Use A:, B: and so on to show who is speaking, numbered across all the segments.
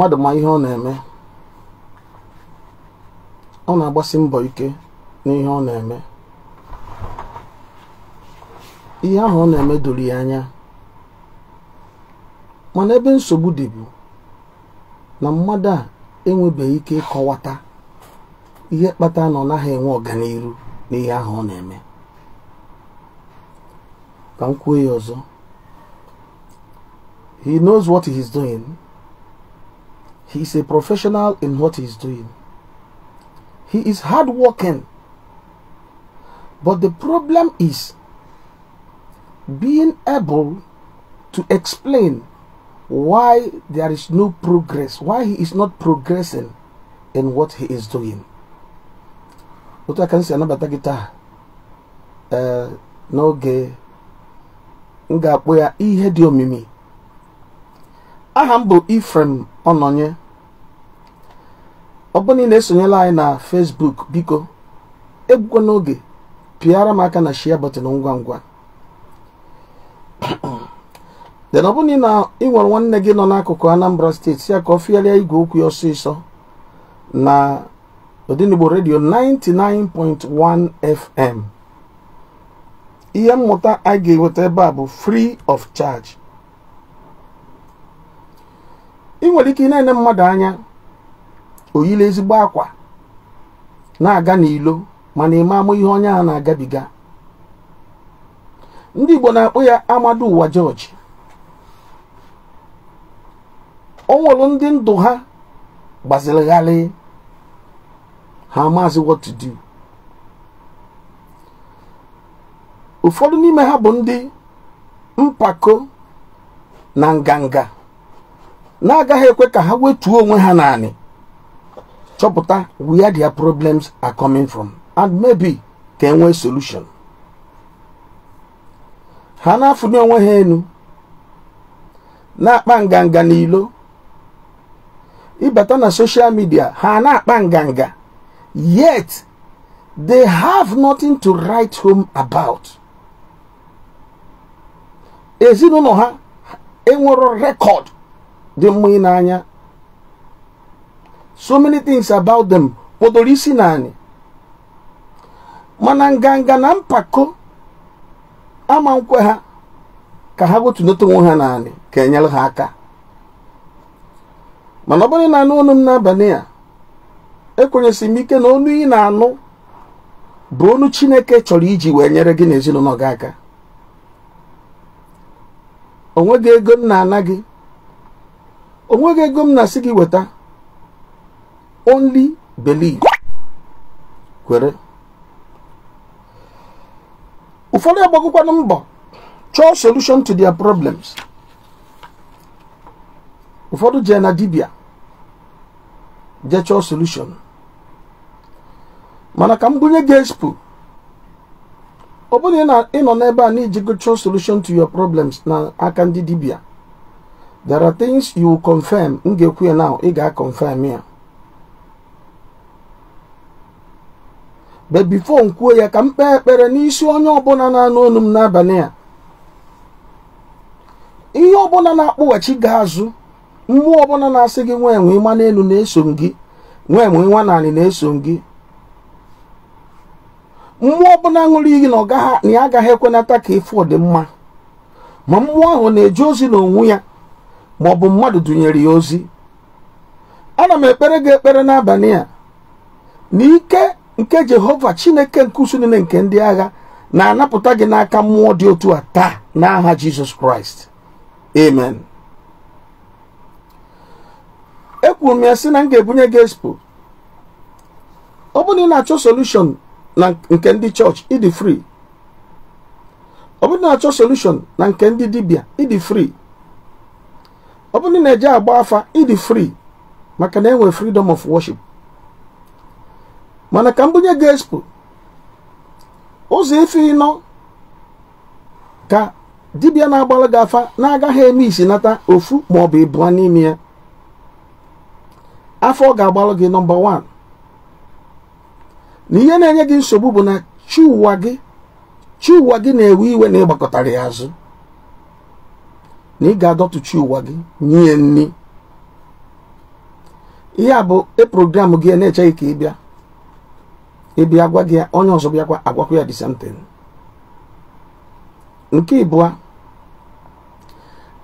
A: mmadụ ma ihe ọ na-eme ọ na-agbasi mbọ ike n'ihe ọ na-eme ihe ahụ ọ na-eme doro ya anya mana ebe nsogbu dị bụ na mmadụ a enwebeghị ike ịkọwata ihe kpata na ọ naghị enwe ọganihu n'ihe ahụ ọ na-eme ka m kwuo ya ọzọ he knows what he is doing. He is a professional in what he is doing. He is hardworking. But the problem is being able to explain why there is no progress, why he is not progressing in what he is doing. otu aka nsi anabata gị taa ee n'oge m ya ihe diomimi. i aha m bụ Ifrem Ọnọnye ọ na ị na-esonyela anyị na fesbuk biko egbukwa n'oge pịara m aka na share button ngwa ngwa den ọ na ị nwere nwanne gị nọ n'akụkụ Anambra steeti ya ka ọ fịarịa igwe okwu ya ọsịsọ na Odenigbo redio 99.1 FM ihe mmụta a ga-eweta ebe a bụ free of charge ị nwere ike ị na-ene mmadụ anya oyila ezigbo akwa na-aga n'ilo mana ịma ama ihe onye a na-agabiga ndị Igbo na-akpọ ya amadu ụwa George o ndị ndụ ha gbazirigharị ha maazị what to do ụfọdụ n'ime ha bụ ndị mpako na nganga na-agaghị ekwe ka ha wetuo onwe ha naanị chọpụta where their problems are coming from and maybe ka enwee solution ha na-afụnye onwe ha enu na-akpa nganga n'ilo ịbata na soshal media ha na-akpa nganga yet they have nothing to write home about ezinụlọ ha enwero rekọd dị mma anya. so many things about them kpọdoro isi naanị. mana nganga na mpako ama nkwe ha ka ha gotunata onwe ha naanị ka enyere ha aka mana ọ bụrụ na anụ ọnụ m n'abalị a ekwenyesị m ike na ọnụ ị na-anụ bụ onu Chineke chọrọ iji wee nyere gị n'ezinụlọ ezinụlọ gị aka onweghị ego m na-ana gị onweghị ego m na-asị gị weta only believe kwere ụfọdụ agbagokwanụ mbọ chọọ solution to their problems ụfọdụ jee na dibia jee chọọ solution mana ka m bunye gị expo ọ bụrụ na ị nọ n'ebe a na go chọọ solution to your problems na aka ndị dibia there are things you confirm m ga-ekwu ya now ị ga-confirm ya bebifo nkwuo ya ka m kpee ekpere n'isi onye ọbụla na-anụ onu m n'abalị a ihe ọbụla na-akpụghachi gị azụ mmụọ ọbụla na-asị gị nwa enwe ịma n'elu na-eso gị nwa enwe nwa naanị na-eso gị mmụọ ọbụla ṅụrụ iyi na ya agaghị ekwenata ka ịfụ ọdịmma ma mmụọ ahụ na-eje ozi n'onwe ya ma ọ bụ mmadụ dụnyere ya ozi ana m ekpere gị ekpere n'abalị a na ike nke jehova chineke nke usu nke ndị agha na-anapụta gị n'aka mmụọ dị otu a taa n'aha jizọs kraịst amen ekwuru m ya sị na m ga-ebunye gị expo ọ na achọ solushọn na nke ndị chọọchị ịdị free ọ na achọ solushọn na nke ndị dibịa ịdị free ọ na eje agba afa ịdị fri maka na enwere freedom of worship mana ka mbunye gị expo ụzọ ife ịnọ ka dibịa na-agbalụ gị afa na-agaghị eme isi nata ofu maọbụ ịbụọ n'ime ya afọ ọ ga-agbalụ gị nọmba 1 na ihe na-enye gị nsogbu bụ na chi gị gị na-ewe iwe na ịgbakọtara ya azụ na ị ga-adọtụ chi gị nye nni ihe a bụ program gị na-echeghị ka ị bịa bịa agwa gị onye ọzọ bịakwa agwakwa ya the nke ịbụa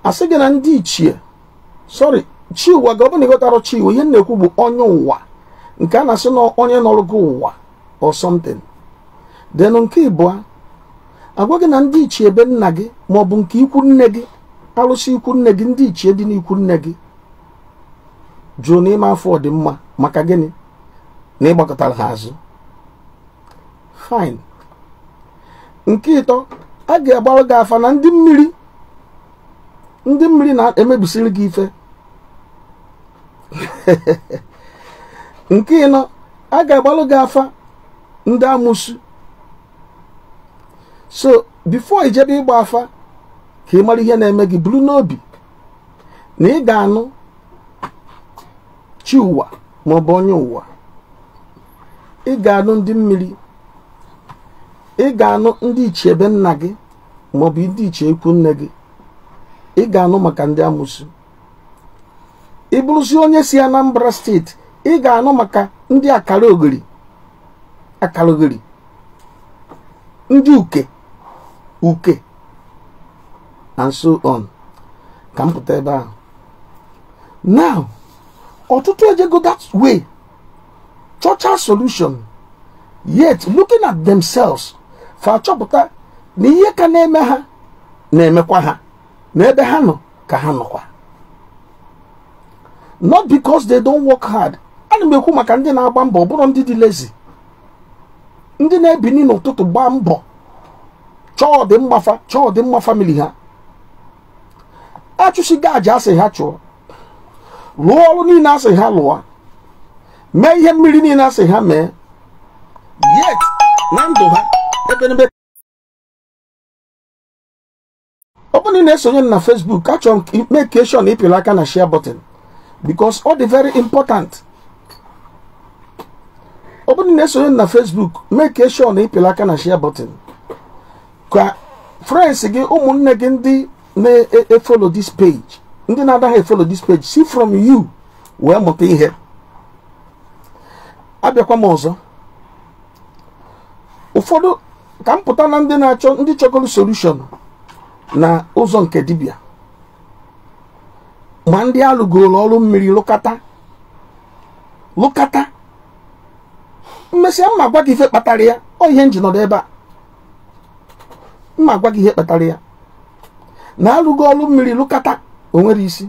A: asị gị na ndị ichie sọrị chi ụwa gị ọ bụrụ na ịghọtara ihe na-ekwu bụ onye ụwa nke a na-asị na onye nọrọ gị ụwa or something then nke ịbụa agwa gị na ndị ichie ebe nna gị ma ọ bụ nke ikwu nne gị alụsị ikwu nne gị ndị ichie dị n'ikwu nne gị jụụ n'ime afọ ọdịmma maka gịnị na ịgbakọtara ha azụ fine nke ịtọ a ga-agbarụ gị afa na ndị mmiri ndị mmiri na-emebisiri gị ife nke ịnọ a ga-agbalụ gị afa ndị amụsụ so bifo ijebe ịgba afa ka ị mara ihe na-eme gị buru n'obi na ị ga-anụ chi ụwa maọbụ onye ụwa ị ga-anụ ndị mmiri ị ga-anụ ndị ichie ebe nna gị maọbụ ndị ichie ekwu nne gị ị ga-anụ maka ndị amụsụ ị bụrụzi onye si Anambra steeti ị ga-anụ maka ndị akara ogiri akara ndị uke uke and so on ka m pụta ebe ahụ now ọtụtụ ejego that way chọcha solution yet looking at themselves fa achọpụta na ihe ka na-eme ha na-emekwa ha na ebe ha nọ ka ha nọkwa not because they don't work hard ana m ekwu maka ndị na-agba mbọ ọbụla bụrụ ndị dị lezi ndị na-ebini n'ụtụtụ gbaa mbọ chọọ dị mgbafa chọọ dị mma famili ha achụsigo aja asị ha chụọ lụọ ọrụ niile asị ha lụọ mee ihe mmiri niile asị ha mee yet na ndụ ha ọ bụrụ na ị na-esonye na Facebook achọrọ m make sure na ịpịrị aka na share button because ọ dị very important ọ bụrụ na ị na-esonye na Facebook make sure na ịpịrị aka na share button ka friends gị ụmụnne gị ndị na-efolo this page ndị na-adaghị efolo this page see from you wee mụta ihe abịakwa m ọzọ ụfọdụ ka m pụta na ndị na-achọ ndị chọgoro solushon na ụzọ nke dibia ma ndị alụgoro ọrụ mmiri lụkata lụkata mma gwa gị ife kpatara ya ọ ihe nji ebe a mma gwa gị ihe kpatara ya na alụgo ọrụ mmiri lụkata o nwere isi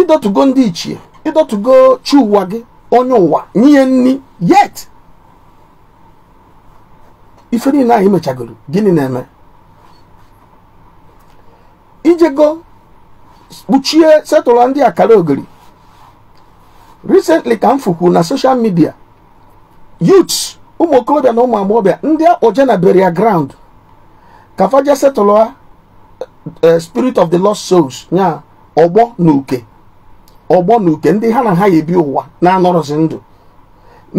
A: ịdọtugo ndị ichie ịdọtụgo chi ụwa gị onye ụwa nye nri yet ife niile anyị mechagoro gịnị na-eme ijego kpuchie setụlọ ndị akara ogiri recently ka m fukwu na social media youths ụmụ okorobịa na ụmụ agbọghọbịa ndị akpọje na burial ground ka faja setụla eh, eh, spirit of the lost souls nya ọgbọ na uke ọgbọ na uke ndị ha na ha ya ụwa na-anọrọzi ndụ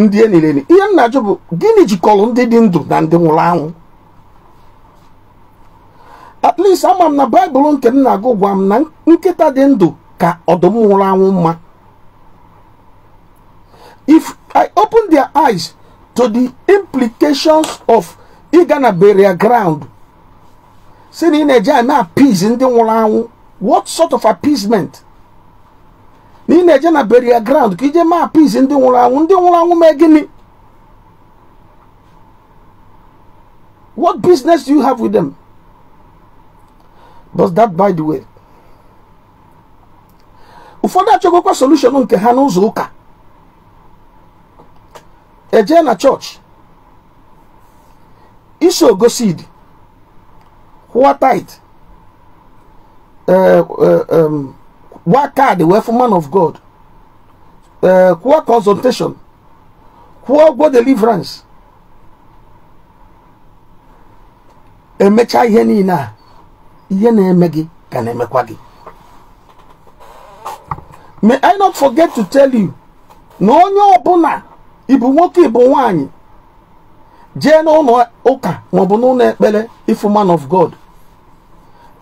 A: ndị enyi ihe nna bụ gịnị jikọrọ ndị dị ndụ na ndị nwụrụ anwụ at least ama m na baịbụl nke m na-agụ gwa m na nkịta dị ndụ ka ọdụm nwụrụ anwụ mma if i open their eyes to the implications of ịga na burial ground si na ị na-eje na-appease ndị nwụrụ anwụ what sort of appeasement na ị na-eje na burial ground ka ije maa peace ndị nwụrụ anwụ ndị nwụrụ anwụ mee gịnị what business do you have with them but that by the way ụfọdụ achọgokwa solution nke ha n'ụzọ ụka eje na chọọchị iso gosid kwụọ tit gwa kaadị wee fụ man of god ee eh, kwụọ consultation kwụọ ụgwọ deliverance emecha ihe niile a ihe na-eme gị ka na-emekwa gị may i not forget to tell you na onye ọbụla ibu nwoke ịbụ nwanyị jee n'ụlọ ụka maọbụ n'ụlọ ekpere ifu man of god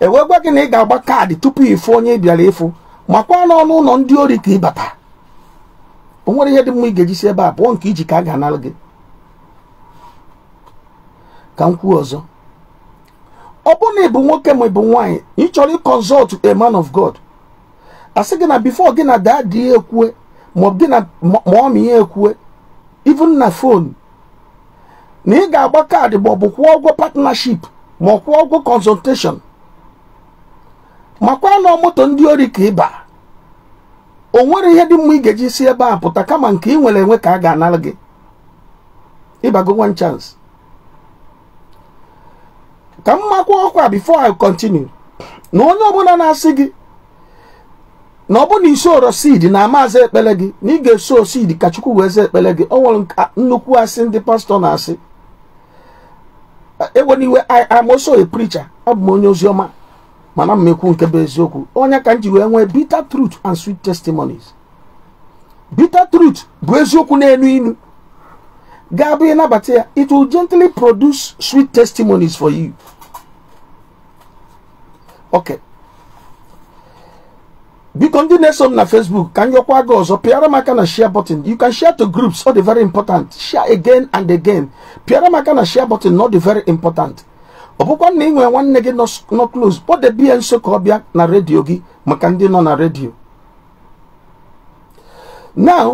A: ewegwa gị na ị ga-agba kaadị tupu ịfụ onye ị bịara ịfụ makwa n'ọnụ ụlọ ndị ori ka ịbata o nwere ihe dị mma ị ga-eji ebe a pụọ nke iji ka a ga gị ka m kwuo ọzọ ọ bụrụ na ị bụ nwoke ma ị bụ nwaanyị ị chọrọ ịkọnsọlt a man of God a sị gị na bifo gị na daadị ihe ekwue maọbụ gị na maọmị ya ekwue even na fon na ị ga-agba kaadị maọbụ kwụọ ụgwọ partnership ma ọ kwụọ ụgwọ consultation makwa na moto ndị ori ka ịba o nwere ihe dị mma ị ga-eji si ebe a pụta kama nke ị nwere enwe ka a ga-anara gị ịbago one chance ka m makwa ọkwa before I continue na onye ọbụla na-asị gị na ọ bụ na isoro seed na amaazị ekpere gị na ị ga-eso seed ka Chukwu wee zaa ekpere gị o nwere nnukwu asị ndị pastọ na-asị eweniwe I am also a preacher abụ m onye oziọma mana mmekwu nke bụ eziokwu onye ka m ji wee nwee bitter truth and sweet testimonies bitter truth bụ eziokwu na-enu inu ga-abụ ịnabata ya it will gently produce sweet testimonies for you ok biko ndị na-eso m na facebook ka m yọkwa gị ọzọ pịara m aka na share button you can share to groups ọ dị very important share again and again pịara m aka na share button ọ dị very important ọ bụkwa na nwere nwanne gị nọ close kpọdebe nso ka ọ na redio gị maka ndị nọ na redio now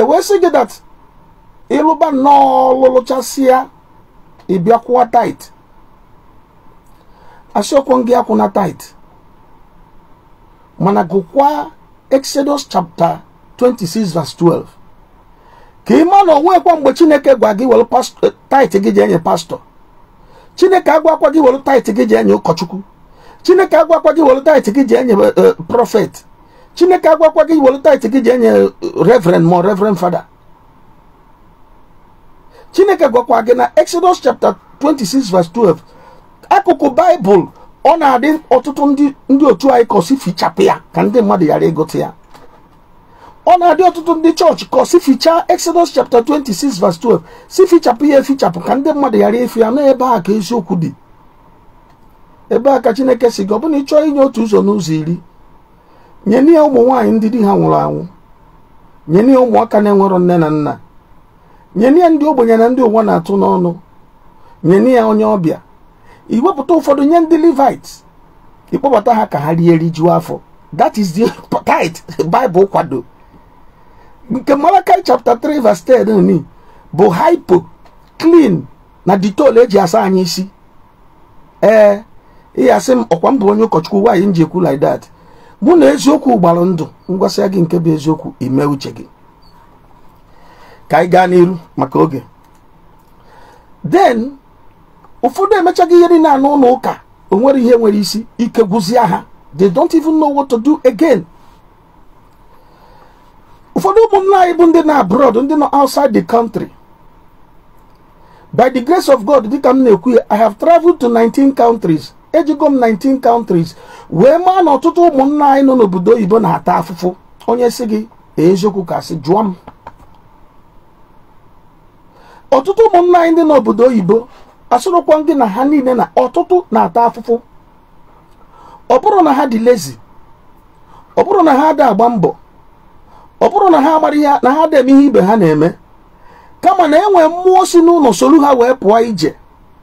A: ewee sị gị that ịlụba nnọọ lụlụchasịa ịbịa tait asiokwu gị akwụna tait mana gụkwa Exodus chapter 26 verse 12 ka ị ma na onwekwa mgbe Chineke gwa gị wel eh, tait gị ji enye pastọ chineke agwakwa gị were taịtị gị ji enye ụkọchukwu chineke akwa gị were taịtị gị ji enye uh, uh, prọfet chineke akwa gị were taịtị gị ji enye revren ma revren fada chineke gwakwa gị na exodus chapter 26 verse 12 akụkụ baịbụl ọ na-adị ọtụtụ ndị otu anyị kọsi fichapụ ya ka ndị mmadụ ghara ịgụta ya ọ na-adị ọtụtụ ndị chọọchị kọ si fichaa Exodus chapter 26 verse 12 si fichapụ ya efichapụ ka ndị mmadụ ghara efi ya na ebe a ka eziokwu dị ebe a ka Chineke si gị ọ bụna ị inye otu ụzọ n'ụzọ iri nye n'ihe ụmụ nwaanyị ndị di ha nwụrụ anwụ nye n'ihe ụmụaka na-enwerọ nne na nna nye n'ihe ndị ogbenye na ndị ụwa na-atụ n'ọnụ nye n'ihe onye ọbịa iwepụta ụfọdụ nye ndị Levite ịkpọbata ha ka ha rie rijuo afọ that is the tithe Bible kwado nke Malakai chapter 3 verse 10 bụ hypo clean na detol e ji asa anyị isi ee ihe asị m ọkwa mbụ onye ụkọchukwu nwaanyị m ji ekwu like that mụ na eziokwu gbara ndụ ngwasịa gị nke bụ eziokwu ime uche gị ka anyị gaa n'iru maka oge den ụfọdụ emechaghị ihe niile na anụ ụlọ ụka onwere ihe nwere isi ike gwụzie ha they don't even know what to do again. ụfọdụ ụmụnna anyị bụ ndị na abroad ndị nọ outside the country by the grace of god dịka m na-ekwu ya i have traveled to 19 countries ejigo m 19 countries wee maa na ọtụtụ ụmụnna anyị nọ n'obodo oyibo na-ata afụfụ onye si gị eziokwu ka sị jụọ m ọtụtụ ụmụnna anyị ndị n'obodo oyibo asụrụkwa gị na ha niile na ọtụtụ na-ata afụfụ ọ bụrụ na ha dị lezi ọ bụrụ na ha ada agba mbọ ọ bụrụ na ha amara ihe na ha debe ihe ibe ha na-eme kama na enwe mmụọ si n'ụlọ soro ha wee pụọ ije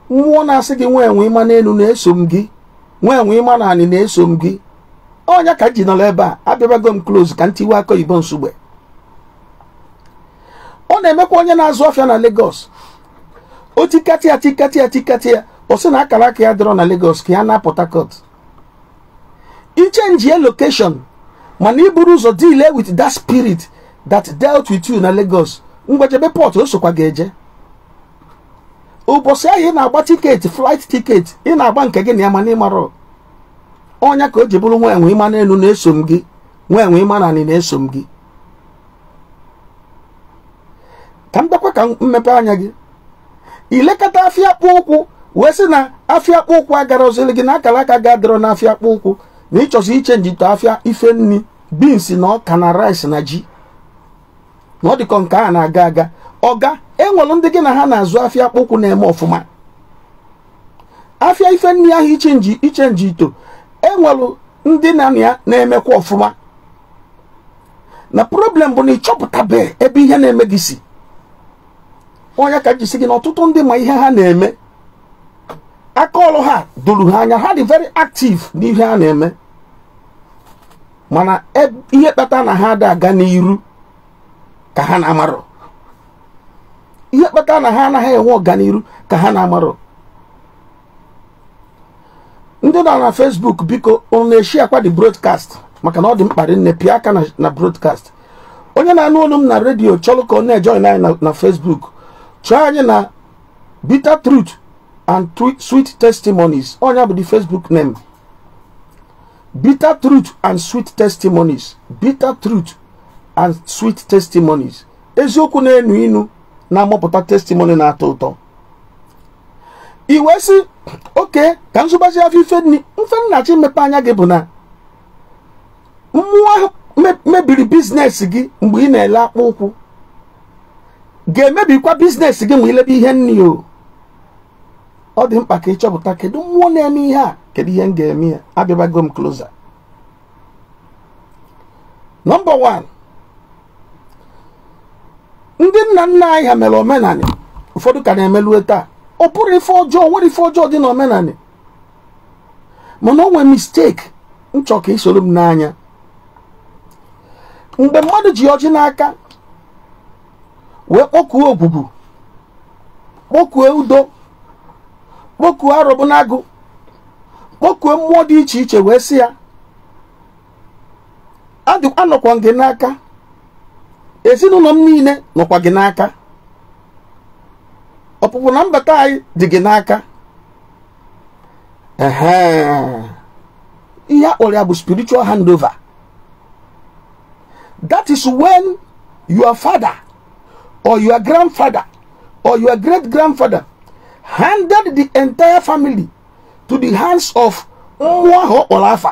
A: mmụọ na-asị gị nwa enwe ịma n'elu na-eso m gị nwa enwe ịma na anị na-eso m gị onya ka ji nọrọ ebe a abịabago m close ka ntiwe tiwe aka oyibo ọ na-emekwa onye na-azụ ọfịa na Lagos o tikati ya tikati ya tikati ya ọ sị na akara aka ya dọrọ na Lagos ka ya na Port i ichenji ya lokeshon mana iburu ụzọ deal eh, with that spirit that dealt with you na Lagos mgbajebe port o sokwa ga-eje ụbọchị ahụ ị na-agba tiketi flight tiketi ị na-agba nke gị na ya mana ịmara onya ka o ji bụrụ nwa enwe ịma na-eso m gị nwa ịma na anị na-eso m gị ka m ka mmepe anya gị ilekọta afịa akpụ ụkwụ wee sị na afịa akpụ ụkwụ agara ozili gị na akara aka ga-adịrọ n'afịa akpụ ụkwụ na ịchọzi ichenji afịa ife ifenni. beans na ọka na rice na ji na ọ dịkọ nke a na-aga aga ọga enwere ndị gị na ha na-azụ afịa akpụkwụ na-eme ọfụma afịa ife nri ahụ iche ichenji ito enwere ndị na ya na-emekwa ọfụma na problem bụ na ịchọpụtabe ebe ihe na-eme gị si onye ka jisi gị na ọtụtụ ndị ma ihe ha na-eme aka ọrụ ha duru ha anya ha dị very active n'ihe ha na-eme mana e, ihe kpata na ha ada aga n'iru ka ha na-amarọ ihe kpata na ha anaghị enwe ọganiru ka ha na-amarọ ndị nọ na Facebook biko unu na-eshi akwa dị broadcast maka na ọ dị mkpa nne pịa aka na brodkast onye na-anụ olu m na redio chọrọ ka ọ na-ejoin anyị na Facebook chọọ anyị na bitter truth and sweet testimonies onye bụ di Facebook name bitter truth and sweet testimonies bitter truth and sweet testimonies eziokwu na-enu inu na-amụpụta testimony na-atọ ụtọ iwe si oke ka nzụbazi afọ ife mfennachi mmepe anya gị bụ na mmụọ mebiri biznes gị mgbe ị na-ele akpụ ụkwụ ga-emebikwa biznes gị ma ilebe ihe nni o ọ dị mkpa ka ị ịchọpụta kedu mmụọ na-eme ihe a kedu ihe m ga-eme ya abịabago m kloza. nọmba 1 ndị nna nna anyị ha mere omenanị ụfọdụ ka na-emelue taa ọ pụrụ ife ọjọọ nwere ife ọjọọ dị n'omenanị mana o nwere mistake nchọ ka isoro m n'anya mgbe mmadụ ji ọjị n'aka wee kpọkuo ogbugbu kpọkuo udo kpokuo arụbụnagụ kpokuo mmụọ dị iche iche wee sị ya anọkwa gị n'aka ezinụlọ m niile nọkwa gị n'aka ọpụpụ na mbata anyị dị gị n'aka ihe akpọrọ ya bụ spiritual handover that is when your father or your grandfather or your great grandfather handed the entire family to the hands of nwa ha ọkpọrọ afa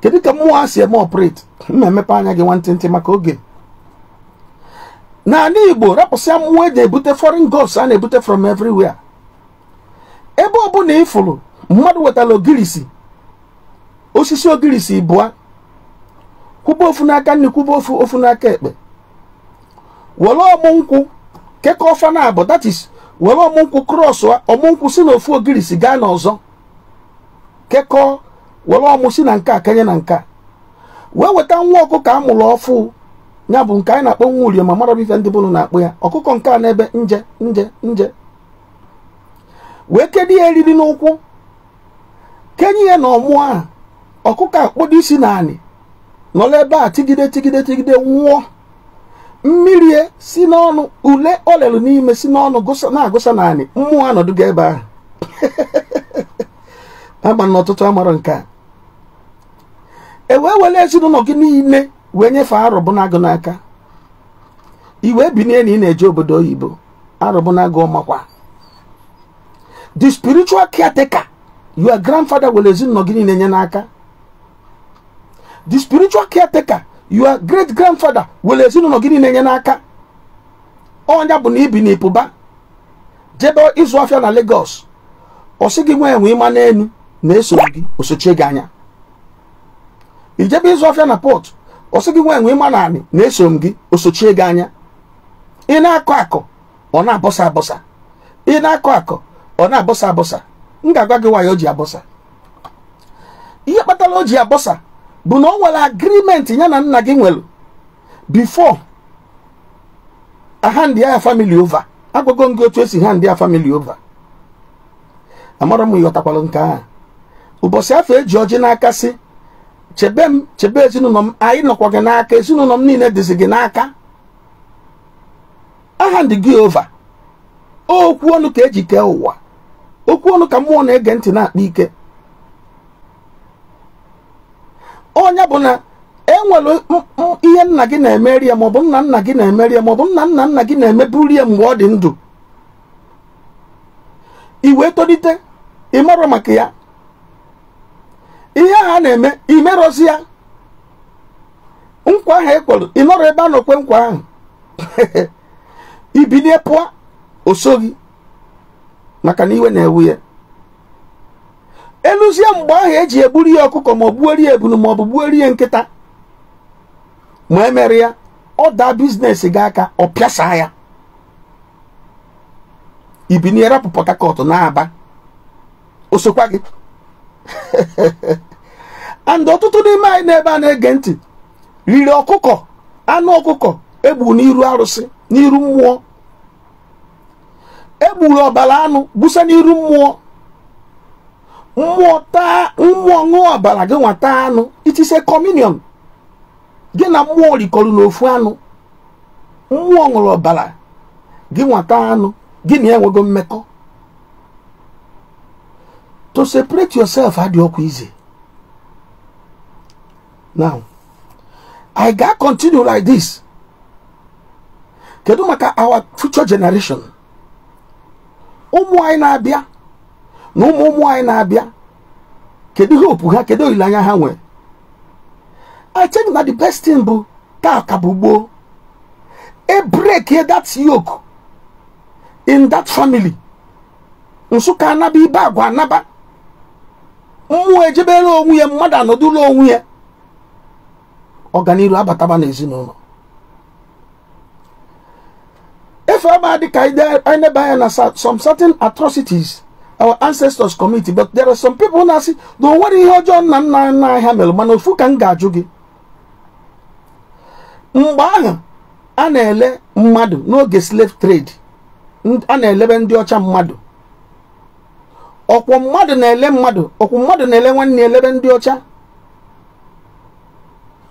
A: kedu ka mmụọ si eme operate mma emepe anya gị ntị maka oge n'ala igbo rapụsịa mmụọ e eji ebute foreign gods a na-ebute from everywhere ebe ọ ọbụla ịfụrụ mmadụ wetara ogirisi osisi ogirisi bụa kwụba ofu n'aka nri kwụba ofu n'aka ekpe were ọmụ nkwụ kekọọ fana abụ that is were ọmụnkwụ krọs ọmụnkwụ si na ofu ogiri si gaa n'ọzọ kekọọ were ọmụ si na nka kenye na nka wee weta nwa ọkụkọ a mụrụ ọfụ ya bụ nke anyị na-akpọ nwa urie ma mara ife ndị bụrụ na-akpọ ya ọkụkọ nke a n'ebe nje nje nje wee kedu ya eriri n'ụkwụ kenye ya na ọmụọ a ọkụkọ akpọdo isi na anị nọrọ ebe a tigide tigide tigide nwụọ mmiri e si n'ọnụ ule o lelu n'ime si n'ọnụ na-agụsa naanị mmụọ anọdụga ebe ahụ agba n'ọtụtụ amara nke a e wee were ezinụlọ gị niile wee nyefee arụbụnagụ n'aka iwe binie na ị na-eje obodo oyibo arụbụnagụ makwa the spiritual caretaker your grandfather were ezinụlọ gị niile nye n'aka the spiritual caretaker your great grandfather were ezinụlọ gị na-enye n'aka ọnya bụ na ibi na ịpụba jebe ịzụ afịa na Lagos ọ sị gị nwee enwe ịma n'elu na-esoro gị osochie gị anya ijebe ịzụ afịa na port ọ sị gị nwee enwe ịma na anị na-eso gị osochie gị anya ị na-akọ akọ ọ na-abọsa abọsa ị na-akọ akọ ọ na-abọsa abọsa m ga-agwa gị nwaanyị o ji abọsa ihe kpatara o ji abọsa bụ na o nwere agrimenti ya na nna gị nwere bifo ahandi ya famili ova agwago gị otu esi ha ndị ya famili ova amara m ịghọtakwalụ nke a ụbọchị afọ eji ọjị n'aka si chebe m chebe ezinụlọ m anyị nọkwa gị n'aka ezinụlọ m niile dịzi gị n'aka aha ndị gị ova okwu ọnụ ka eji kee ụwa okwu ọnụ ka mmụọ na-ege ntị na-akpa ike onye bụ na e enwere ihe nna gị na-emeri maọbụ nna nna gị na-emeri ya maọbụ nna nna gị na-emeburi ya mgbe ọ dị ndụ iwe tolite ịmarọ maka ya ihe ha na-eme imerozi ya nkwa ahụ e ị ịnọrọ ebe a nọkwe nkwa ahụ ibilie pụọ o gị maka na iwe na-ewu ya eluzie mgbe ahụ eji egburu ya ọkụkọ ma ọ gbuorie ebunu ma ọ bụ ya nkịta ma emere ya ọ daa bizinesi gị aka ọ pịasa ya ibini rapụ Port Harcourt na-aba osokwa gị and ọtụtụ n'ime anyị n'ebe a na-ege ntị riri ọkụkọ anụ ọkụkọ egburu n'iru arụsị n'iru mmụọ egburu ọbara anụ busa n'iru mmụọ mmụọ ṅụọ ọbara gị nwata anụ itise kọminion gị na mmụọ rikọrọ n'ofu anụ mmụọ ṅụrụ ọbara gị nwata anụ gị na enwego mmekọ to separate yourself adị ọkụ ize now i ga continue like this kedu maka our future generation ụmụ anyị na-abịa na ụmụ ụmụ anyị na-abịa kedu ihe opu ha kedu olileanya ha nwere I think na the best thing bụ taa bụ gboo e that yoke in that family nsụka anaba ibe agwa anaba mmụọ ejebere onwe ya mmadụ anọdụla onwe ya ọganiru abataba n'ezinụlọ efe ama dịka anyị na anya na some certain atrocities our ancestors community but there are some people na-asị na o nwere ihe ọjọọ nna nna nna ahịa mere mana ofu ka m ga-ajụ gị mgbe ahụ a na-ele mmadụ n'oge slave trade a na-elebe ndị ọcha mmadụ ọkwụ mmadụ na-ele mmadụ ọkwụ mmadụ na-ele nwanne elebe ndị ọcha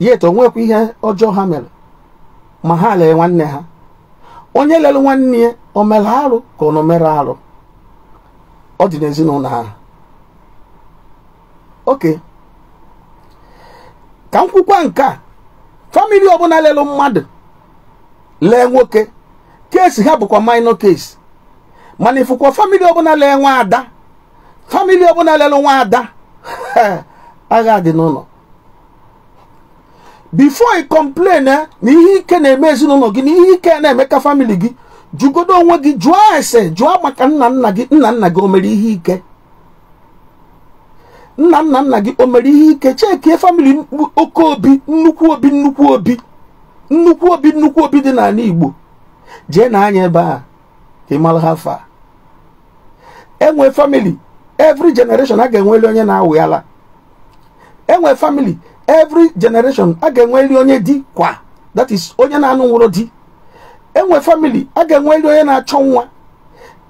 A: yet onwekwa ihe ọjọọ ha mere ma ha lee nwanne ha onye lere nwanne ya o mere arụ ka ọ nọ mere arụ ọ dị n'ezinụlọ ha oke ka m kwukwa nke a famili ọbụla lelụ mmadụ lee nwoke keesi ha bụkwa minor case mana ịfụkwa famili ọbụla lee ada famili ọbụla lelụ ada agha dị n'ụlọ bifo ị kọmplen eh, na ihe ike na-eme ezinụlọ gị na ihe ike na-eme ka famili gị jụgodo onwe gị jụọ ese jụọ maka nna nna gị nna nna gị o mere ihe ike nna nna nna gị o mere ihe ike chee chekie famili oke obi nnukwu obi nnukwu obi nnukwu obi nnukwu obi dị n'ala Igbo jee na anya ebe a ka ịmara ha fa enwe famili every generation a ga-enweli onye na-awụ enwe famili every generation a ga-enweli onye di kwa that is onye na-anụ nwụrụ di enwe famili a ga-enwe nri onye na-achọ nwa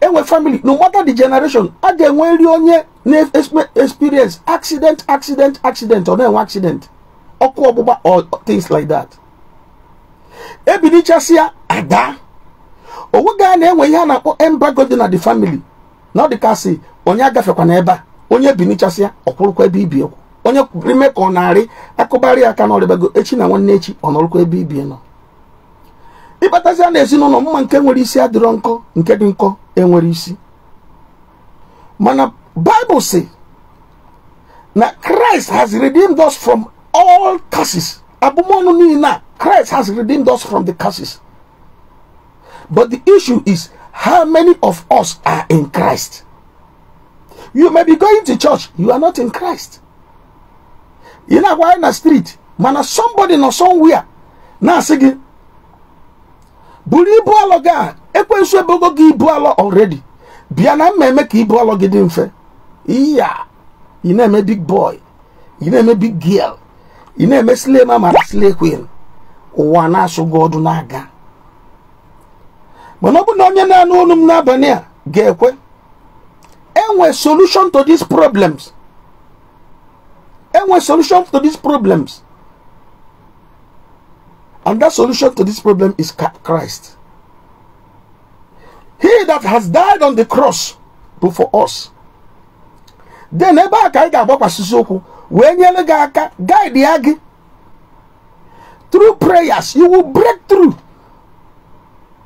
A: enwe famili no matter the generation a ga-enwe nri onye na-experience accident accident accident ọ na-enwe accident ọkụ ọgbụgba or things like that ebilichasịa ada onweghị a na-enwe ihe a na-akpọ embargo dị na the family na ọ dị ka sị onye agafekwana ebe a onye binichasịa ọkwụrụkwa ebe ibi onye ime ka ọ narị akụbarị aka na echi na nwanne echi ọ nọrụkwa ebe ibi nọ ịkpatazia na ezinụlọ mma nke nwere isi adịrọ nkọ nke dị nkọ enwere isi mana Bible si na Christ has redeemed us from all curses abụmọnụ niile a Christ has redeemed us from the curses but the issue is how many of us are in Christ you may be going to church you are not in Christ ị na-agwa na street mana somebody nọ somewhere na-asị gị buru ibu alọ gị a ekwensu ebogo gị ibu alọ already bịa na eme ka ibu alọ gị dị mfe iya ị na-eme big boy ị na-eme big girl ị na-eme slay mama na queen ụwa na-asụ gị ọdụ na-aga mana na onye na-anụ olu m n'abalị a ga-ekwe enwe solution to these problems e problems And that solution to this problem is Christ. He that has died on the cross for us. Then ebe a ka anyị ga-agbakwasịsị okwu wee nyere gị aka guide ya gị through prayers you will break through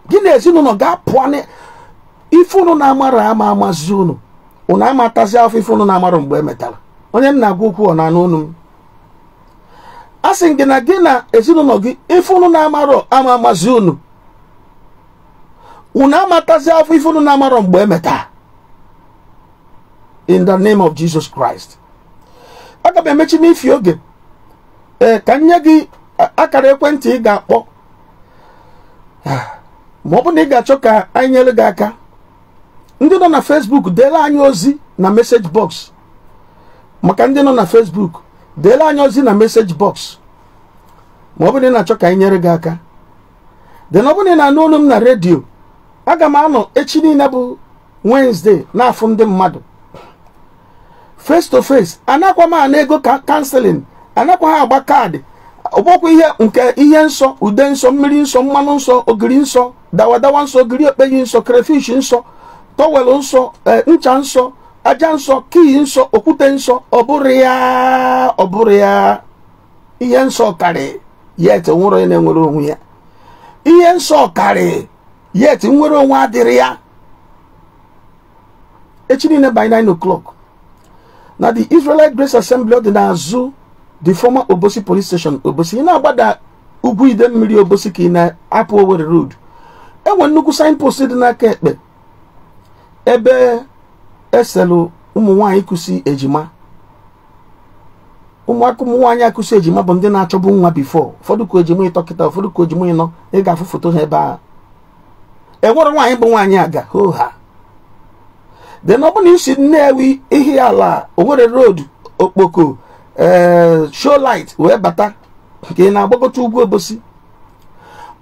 A: gị na ezinụlọ ga-apụa ife unu na-amara ama amazi unu unu amatazi afọ ife unu na-amara mgbe emetara onye m na-agwa okwu ọ na anụ unu m a sị gị na gị na ezinụlọ gị ife unu na-amarọ ama amazi unu unu amatazi afọ ife unu na-amarọ mgbe emeta in the name of Jesus Christ aga m emechi n'ifi oge ee ka nye gị akara ekwentị ị ga-akpọ ma ọ bụ na ị ga-achọ ka anyị nyere gị aka ndị nọ na Facebook deela anyị ozi na message box maka ndị nọ na Facebook deela anyị ozi na meseji bọksụ ma ọ bụrụ na achọ ka anyị nyere gị aka den ọ bụrụ na na-anụ olu m na redio aga m anọ echi niile bụ Wednesday na ndị mmadụ face to face anakwa m ana ego ka kanselin anakwa ha agba kaadị ọgbọkwa ihe nke ihe nsọ ude nsọ mmiri nsọ mmanụ nsọ ogiri nsọ dawadawa nsọ ogiri okpeyi nsọ krafish nsọ tọwel nsọ eh, ncha nsọ aja nsọ kii nsọ okwute nsọ ọ bụrụ ya ọ bụrụ ya ihe nsọ karị ya eti nwere onye na-enwere onwe ya ihe nsọ karị ya eti nwere onwe adịrị ya echi niile by 9 o'clock na the Israelite Grace Assembly dị n'azụ the former Obosi police station Obosi ị na-agbada ugwu ide mmiri Obosi ka ị na-apụ Owerri road enwe nnukwu signpost dị n'aka ekpe ebe Eselu ụmụ nwaanyị kụsi ejima ụmụaka ụmụ nwaanyị akụsi ejima bụ ndị na-achọbụ nwa bifo ụfọdụ ka ejima ịtọ kịta ụfọdụ ka ojima ịnọ ị ga-afụ foto ha ebe a enwere nwaanyị bụ nwaanyị aga hoo ha de na ọ bụrụ na isi nnewi ihi ala owere road okpoko eh, shoo light wee bata nke ị na-agbagọta ugwu obosi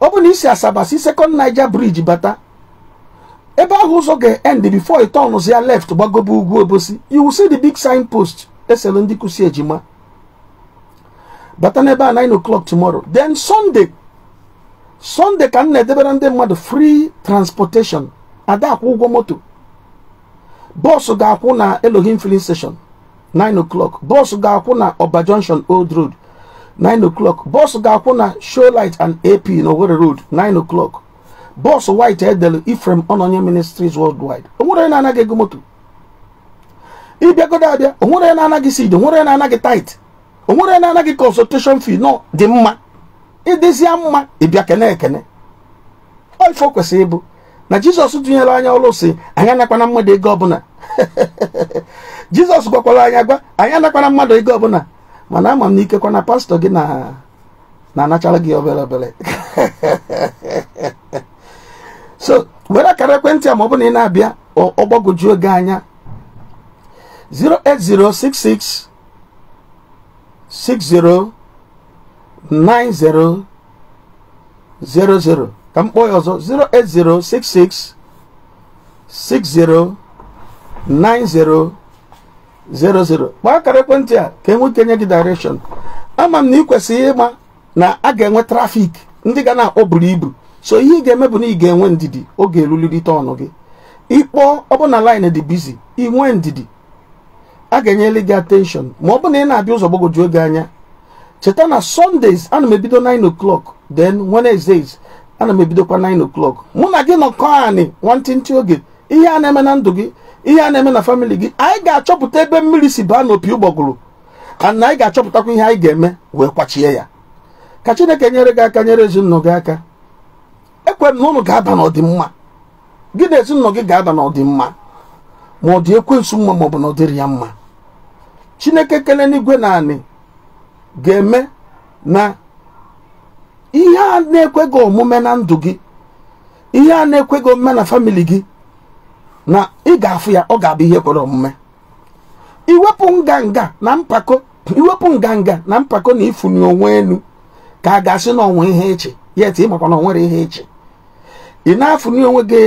A: ọ na isi asaba si Naija briji bata ebe ahụ ụzọ ga-end before ịtọnụzi ya left gbagobe ugwu obosi you see the big sign post eselu ndị ejima bata n'ebe a 9 o'clock tomorrow then sunday sunday ka m na-edebere ndị mmadụ free transportation ada akwụ ụgwọ moto bọọsụ ga-akwụ na elohim filling station 9 o'clock bọọsụ ga-akwụ na ọba junction old road 9 o'clock bọọsụ ga-akwụ na show and ap na owerri road 9 o'clock bọọsụ white edel Ifrem onye ministries worldwide onwere na-anaghị ego moto ịbịagodo abịa onwere na-anaghị seed onwere na-anaghị tit onwere na-anaghị consultation fee nọ dị mma ịdịzie mma ịbịa kene ekene oife kwesịrị ịbụ na jizọs tụnyere anya ọlụ si anyị anakwana mmadụ ego ọbụla jizọs gwakwara anyị agwa anyị anakwana mmadụ ego ọbụla mana ama m na ikekwa na pastọ gị na na-anachara gị obere obere so were akara ekwentị a ma ọ bụ na ị na-abịa ọgbagwoju oge anya 08066 ka m kpọọ ya ọzọ 08066 609000 akara ekwentị a ka enwe nye gị direction ama m na ị kwesịrị ịma na a ga-enwe trafik ndị ga na-akpọ buru ibu so ihe ị ga-eme bụ na ị ga-enwe ndidi oge erulirite ọnụ gị ịkpọọ ọbụna line dị bizi inwe ndidi a ga-enyere gị attention ma ọ bụ na ị na-abịa ụzọ gbagwoju oge anya cheta na sundays ana m ebido 9 o'clock then wednesdays ana m ebidokwa 9 o'clock mụ na gị nọkọ anị nwantịntị oge ihe a na-eme na ndụ gị ihe a na-eme na famịlị gị anyị ga-achọpụta ebe mmiri si baa n'opi ụgbọgụrụ ana anyị ga-achọpụtakwa ihe anyị ga-eme wee kwachie ya ka chineke nyere gị aka nyere ezinụlọ gị aka ekwere na ụnụ ga-aba n'ọdịmma gị na ezinụlọ gị ga-aba n'ọdịmma ma ọ dị ekwensu mma ma bụ na ọ dịrị ya mma chineke kele n'igwe naanị ga-eme na ihe a na gị omume na ndụ gị ihe a na-ekweghị omume na famili gị na ị ga-afụ ya ọ ga-abụ ihe kwere omume iwepụ nganga na mpako na mpako onwe elu ka a ga-asị n'ọnwa ihe eche yet ị makwa na ọ nwere ihe echi ị na-afụnye onwe gị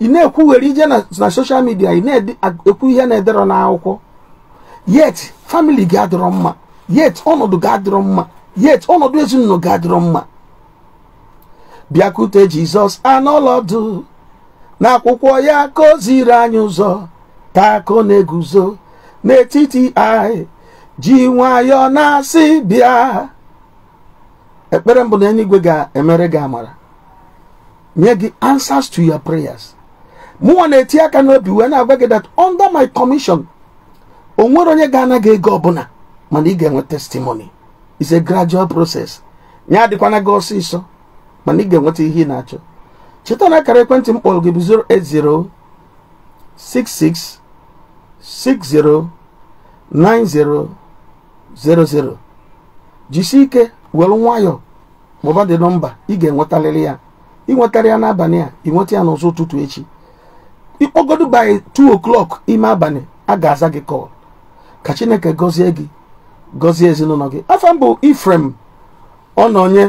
A: ị na-ekwugheri ije na soshal midia ị na-ekwu ihe na-edere na-akwụkwọ yet famili gị adịrọ mma yet ọnọdụ gị adịrọ mma yet ọnọdụ ezinụlọ gị adịrọ mma bịakute jizọs anọlọdụ n'akwụkwọ ya ka o ziri anyị ụzọ taa ka na-eguzo n'etiti anyị ji nwayọọ na-asị bịa ekpere mbụ na eluigwe ga-emere gị amara nye gị answers to your prayers mụnwa na-eti aka n'obi wee na-agwa gị that under my commission o nwere onye ga anaghị ego ọbụla mana ị ga-enwe testimony it's a gradual process ya adịkwana gị ọsịsọ mana ị ga-enweta ihe ị na-achọ cheta na akara ekwentị m kpọrọ gị bụ jisi ike were nwayọ mụba dị nọmba ị ga-enwetarịrị ya ịnwetarị ya n'abalị a nweta ya n'ụzọ ụtụtụ echi ịkpọgodu by 2 o'clock ime abalị a ga-aza gị kọl ka chineke gọzie gị gọzie ezinụlọ gị afọ mbụ ifrem ọnọnye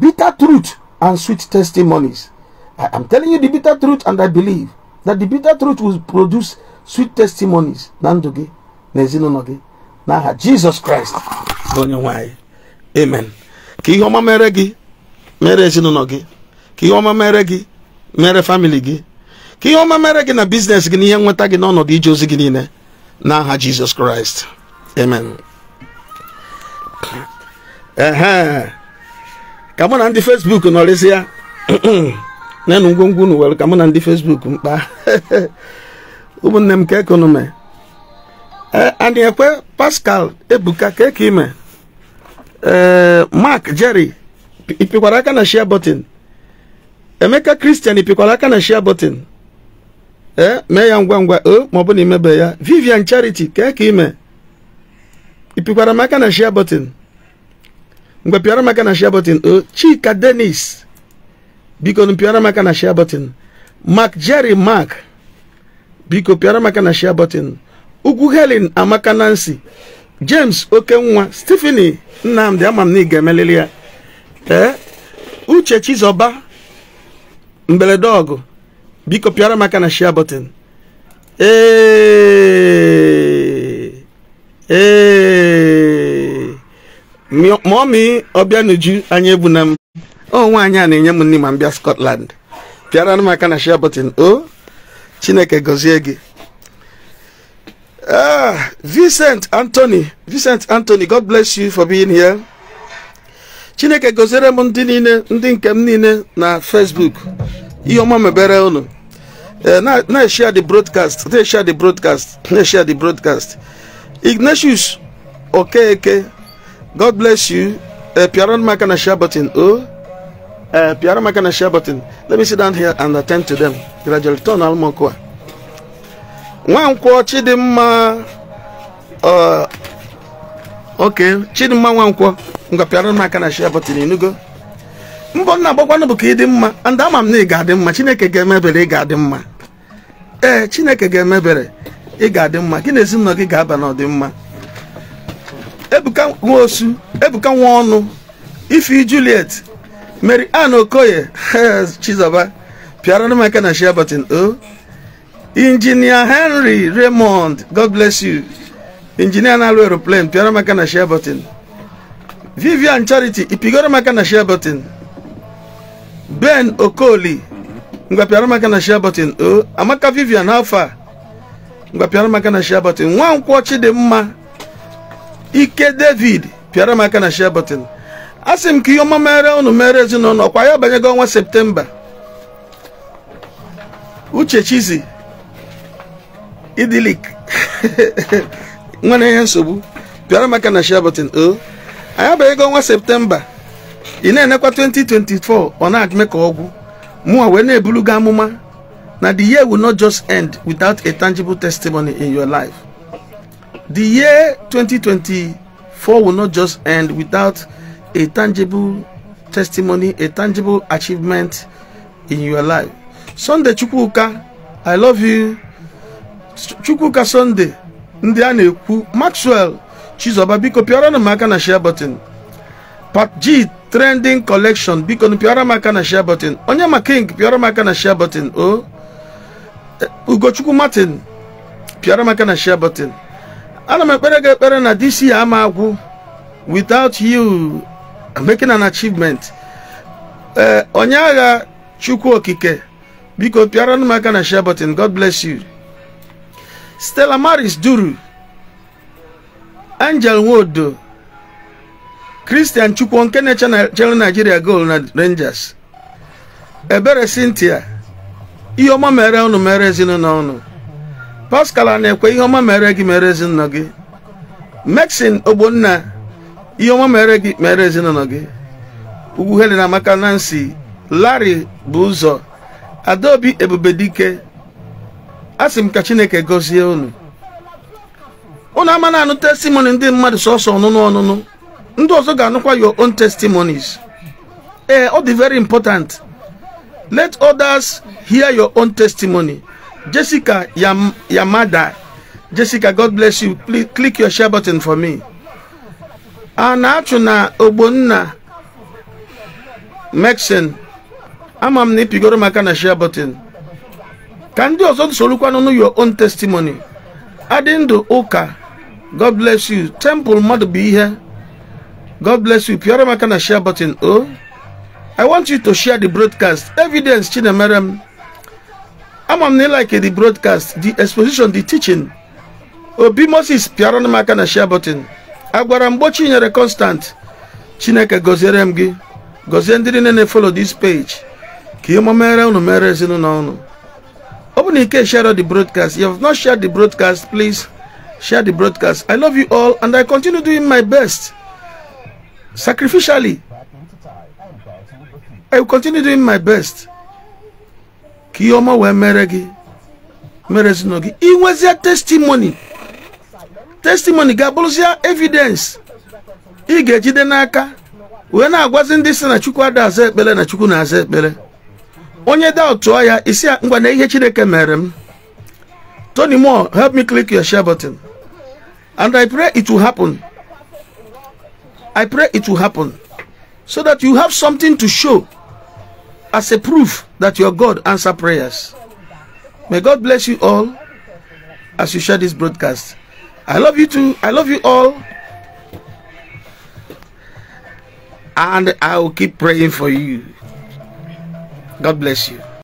A: bitter truth and sweet testimonies I am telling you the bitter truth and I believe that the bitter truth will produce sweet testimonies na ndụ gị na ezinụlọ gị n'aha Jizọs Kraịst onye nwe anyị amen ka ihe ọma mere gị mere ezinụlọ gị ka ihe ọma mere gị mere famili gị ka ihe ọma mere gị na biznes gị na ihe nweta gị n'ọnọdụ ije ozi gị niile n'aha Jizọs Kraịst amen ka mụ na ndị Facebook nọrịsịa nenu ngwongwo unu were ka mụ na ndị Facebook mkpa ụmụnne m ka ekonome anyị ekwe Pascal Ebuka ka eke ime Eh, mark jerry ịpịkwara aka na share button emeka christian ịpịkwara aka na share button ee eh, mee ya ngwa ngwa o eh, ma na imebe ya vivian charity kee ka ime ịpịkwara m aka na share button mgbe pịara m aka na share button o chika denis biko pịara m aka na share button mark jerry mark biko pịara m aka na share button ugwu helen amaka nancy james okenwa stephenie nnamdị ama m na ị ga emelili ya ee uche chizọba mberede ọgụ biko pịara maka na shia button ee ma ọmị ọbịa n'uju anya na m ọ nwaanyị a na-enye m nne ma m bịa Scotland pịara maka na shia button o Chineke gọzie gị Uh, Vincent Anthony, Vincent Anthony, God bless you for being here. Chineke gozere m ndị niile ndị nke m niile na Facebook. Ihe ọma mebere unu. Eh, na-eshare the broadcast, na-eshare the broadcast, na-eshare the broadcast. Ignatius Okeke, God bless you. Uh, eh, Piaran maka na share button. Oh, uh, eh, Piaran maka na share button. Let me sit down here and attend to them. Gradually, turn nwankwọ chidimma oke chidimma nwankwọ ngwapịara m aka na shia bọtịn enugo mbọ nna agbakwanụ bụ ka ịdị mma ndị ama m na ị ga-adị mma chineke ga-emebere ị ga-adị mma ee chineke ga-emebere ị ga-adị mma gị na ezinụlọ gị ga-aba n'ọdịmma ebuka nwa osu ebuka nwa ọnụ ifi juliet mary ann okoye chizoba pịara m aka na shia bọtịn o oh. injinia henry raymond god bless you injinia na-alụ aeroplane pịara maka na share button vivian charity ịpigoro maka na share button ben okoli ngwa pịara maka na share button o oh, amaka vivian how far ngwa pịara maka na share button nwankwọ chidimma ike david pịara maka na share button a sị m ka ihe ọma mere unu mere ezinụlọ kwa ya banyego ọnwa septemba uche chizi idilik nwere ihe nsogbu pịara maka na share eh? o anyị abịa ego ọnwa septemba ị na-enekwa 2024 ọ na-adịme ka ọgwụ mụnwa wee na-ebulu gị amụma na the year will not just end without a tangible testimony in your life the year 2024 will not just end without a tangible testimony a tangible achievement in your life sunday chukwuka i love you chukwuka sọnde ndị a na-ekwu maxwell chizoba biko pịọrọnụ m aka na share button pat g trending collection biko pịọrọ m aka na share button onye ma king pịọrọ m aka na share button o eh, ugochukwu martin pịọrọ m aka na share button ana m ekpere gị ekpere na dc ama agwụ without you making an achievement eh, onye agha chukwu okike biko pịọrọ m aka na share button god bless you Stella Maris Duru Angel Nwodo Christian Chukwu nke na-echere Nigeria gol na Rangers Ebere Cynthia ihe ọma mere ọnụ mere ezinụlọ ọnụ Pascal na-ekwe ihe ọma mere gị mere ezinụlọ gị Maxine Ogbonna ihe ọma mere gị mere ezinụlọ gị Ugwu Helen Amaka Nancy Larry bụ ụzọ Adaobi Ebubedike asị m ka chineke gozie unu unu ama na anụ testimony ndị mmadụ sọsọ ọnụnụ ọnụnụ ndị ọzọ ga-anụkwa your own testimonies ee eh, ọ dị very important let others hear your own testimony jessica Yam yamada jessica god bless you Please click your share button for me a na-achụ na ogbonna mexen ama m na maka na share button ka ndị ọzọ sorokwanụ your own testimony adị ndụ ụka god bless you temple mmadụ bụ ihe god bless you pịọrọ m aka na share button o oh. i want you to share the broadcast evidence chinemere m ama m na ịlike the broadcast the exposition the teaching obi moses pịọrọ m aka na share button agwara mgbo nyere constant chineke gọziere m gị gọzie ndị niile na-efolo this page ka ihe mere unu mere ezinụlọ unu Open in case share out the broadcast. If you have not shared the broadcast, please share the broadcast. I love you all and I continue doing my best sacrificially. I will continue doing my best. Kiyoma we ọma wee mere gị testimony testimony ga evidence ị ga-ejide n'aka na agwazin disi na chukwu ada aza bele na chukwu na-aza onye da tụọ ya isi ngwa na ihe chineke mere m Tony Moore help me click your share button and I pray it will happen I pray it will happen so that you have something to show as a proof that your God answer prayers may God bless you all as you share this broadcast I love you too I love you all and I will keep praying for you God bless you.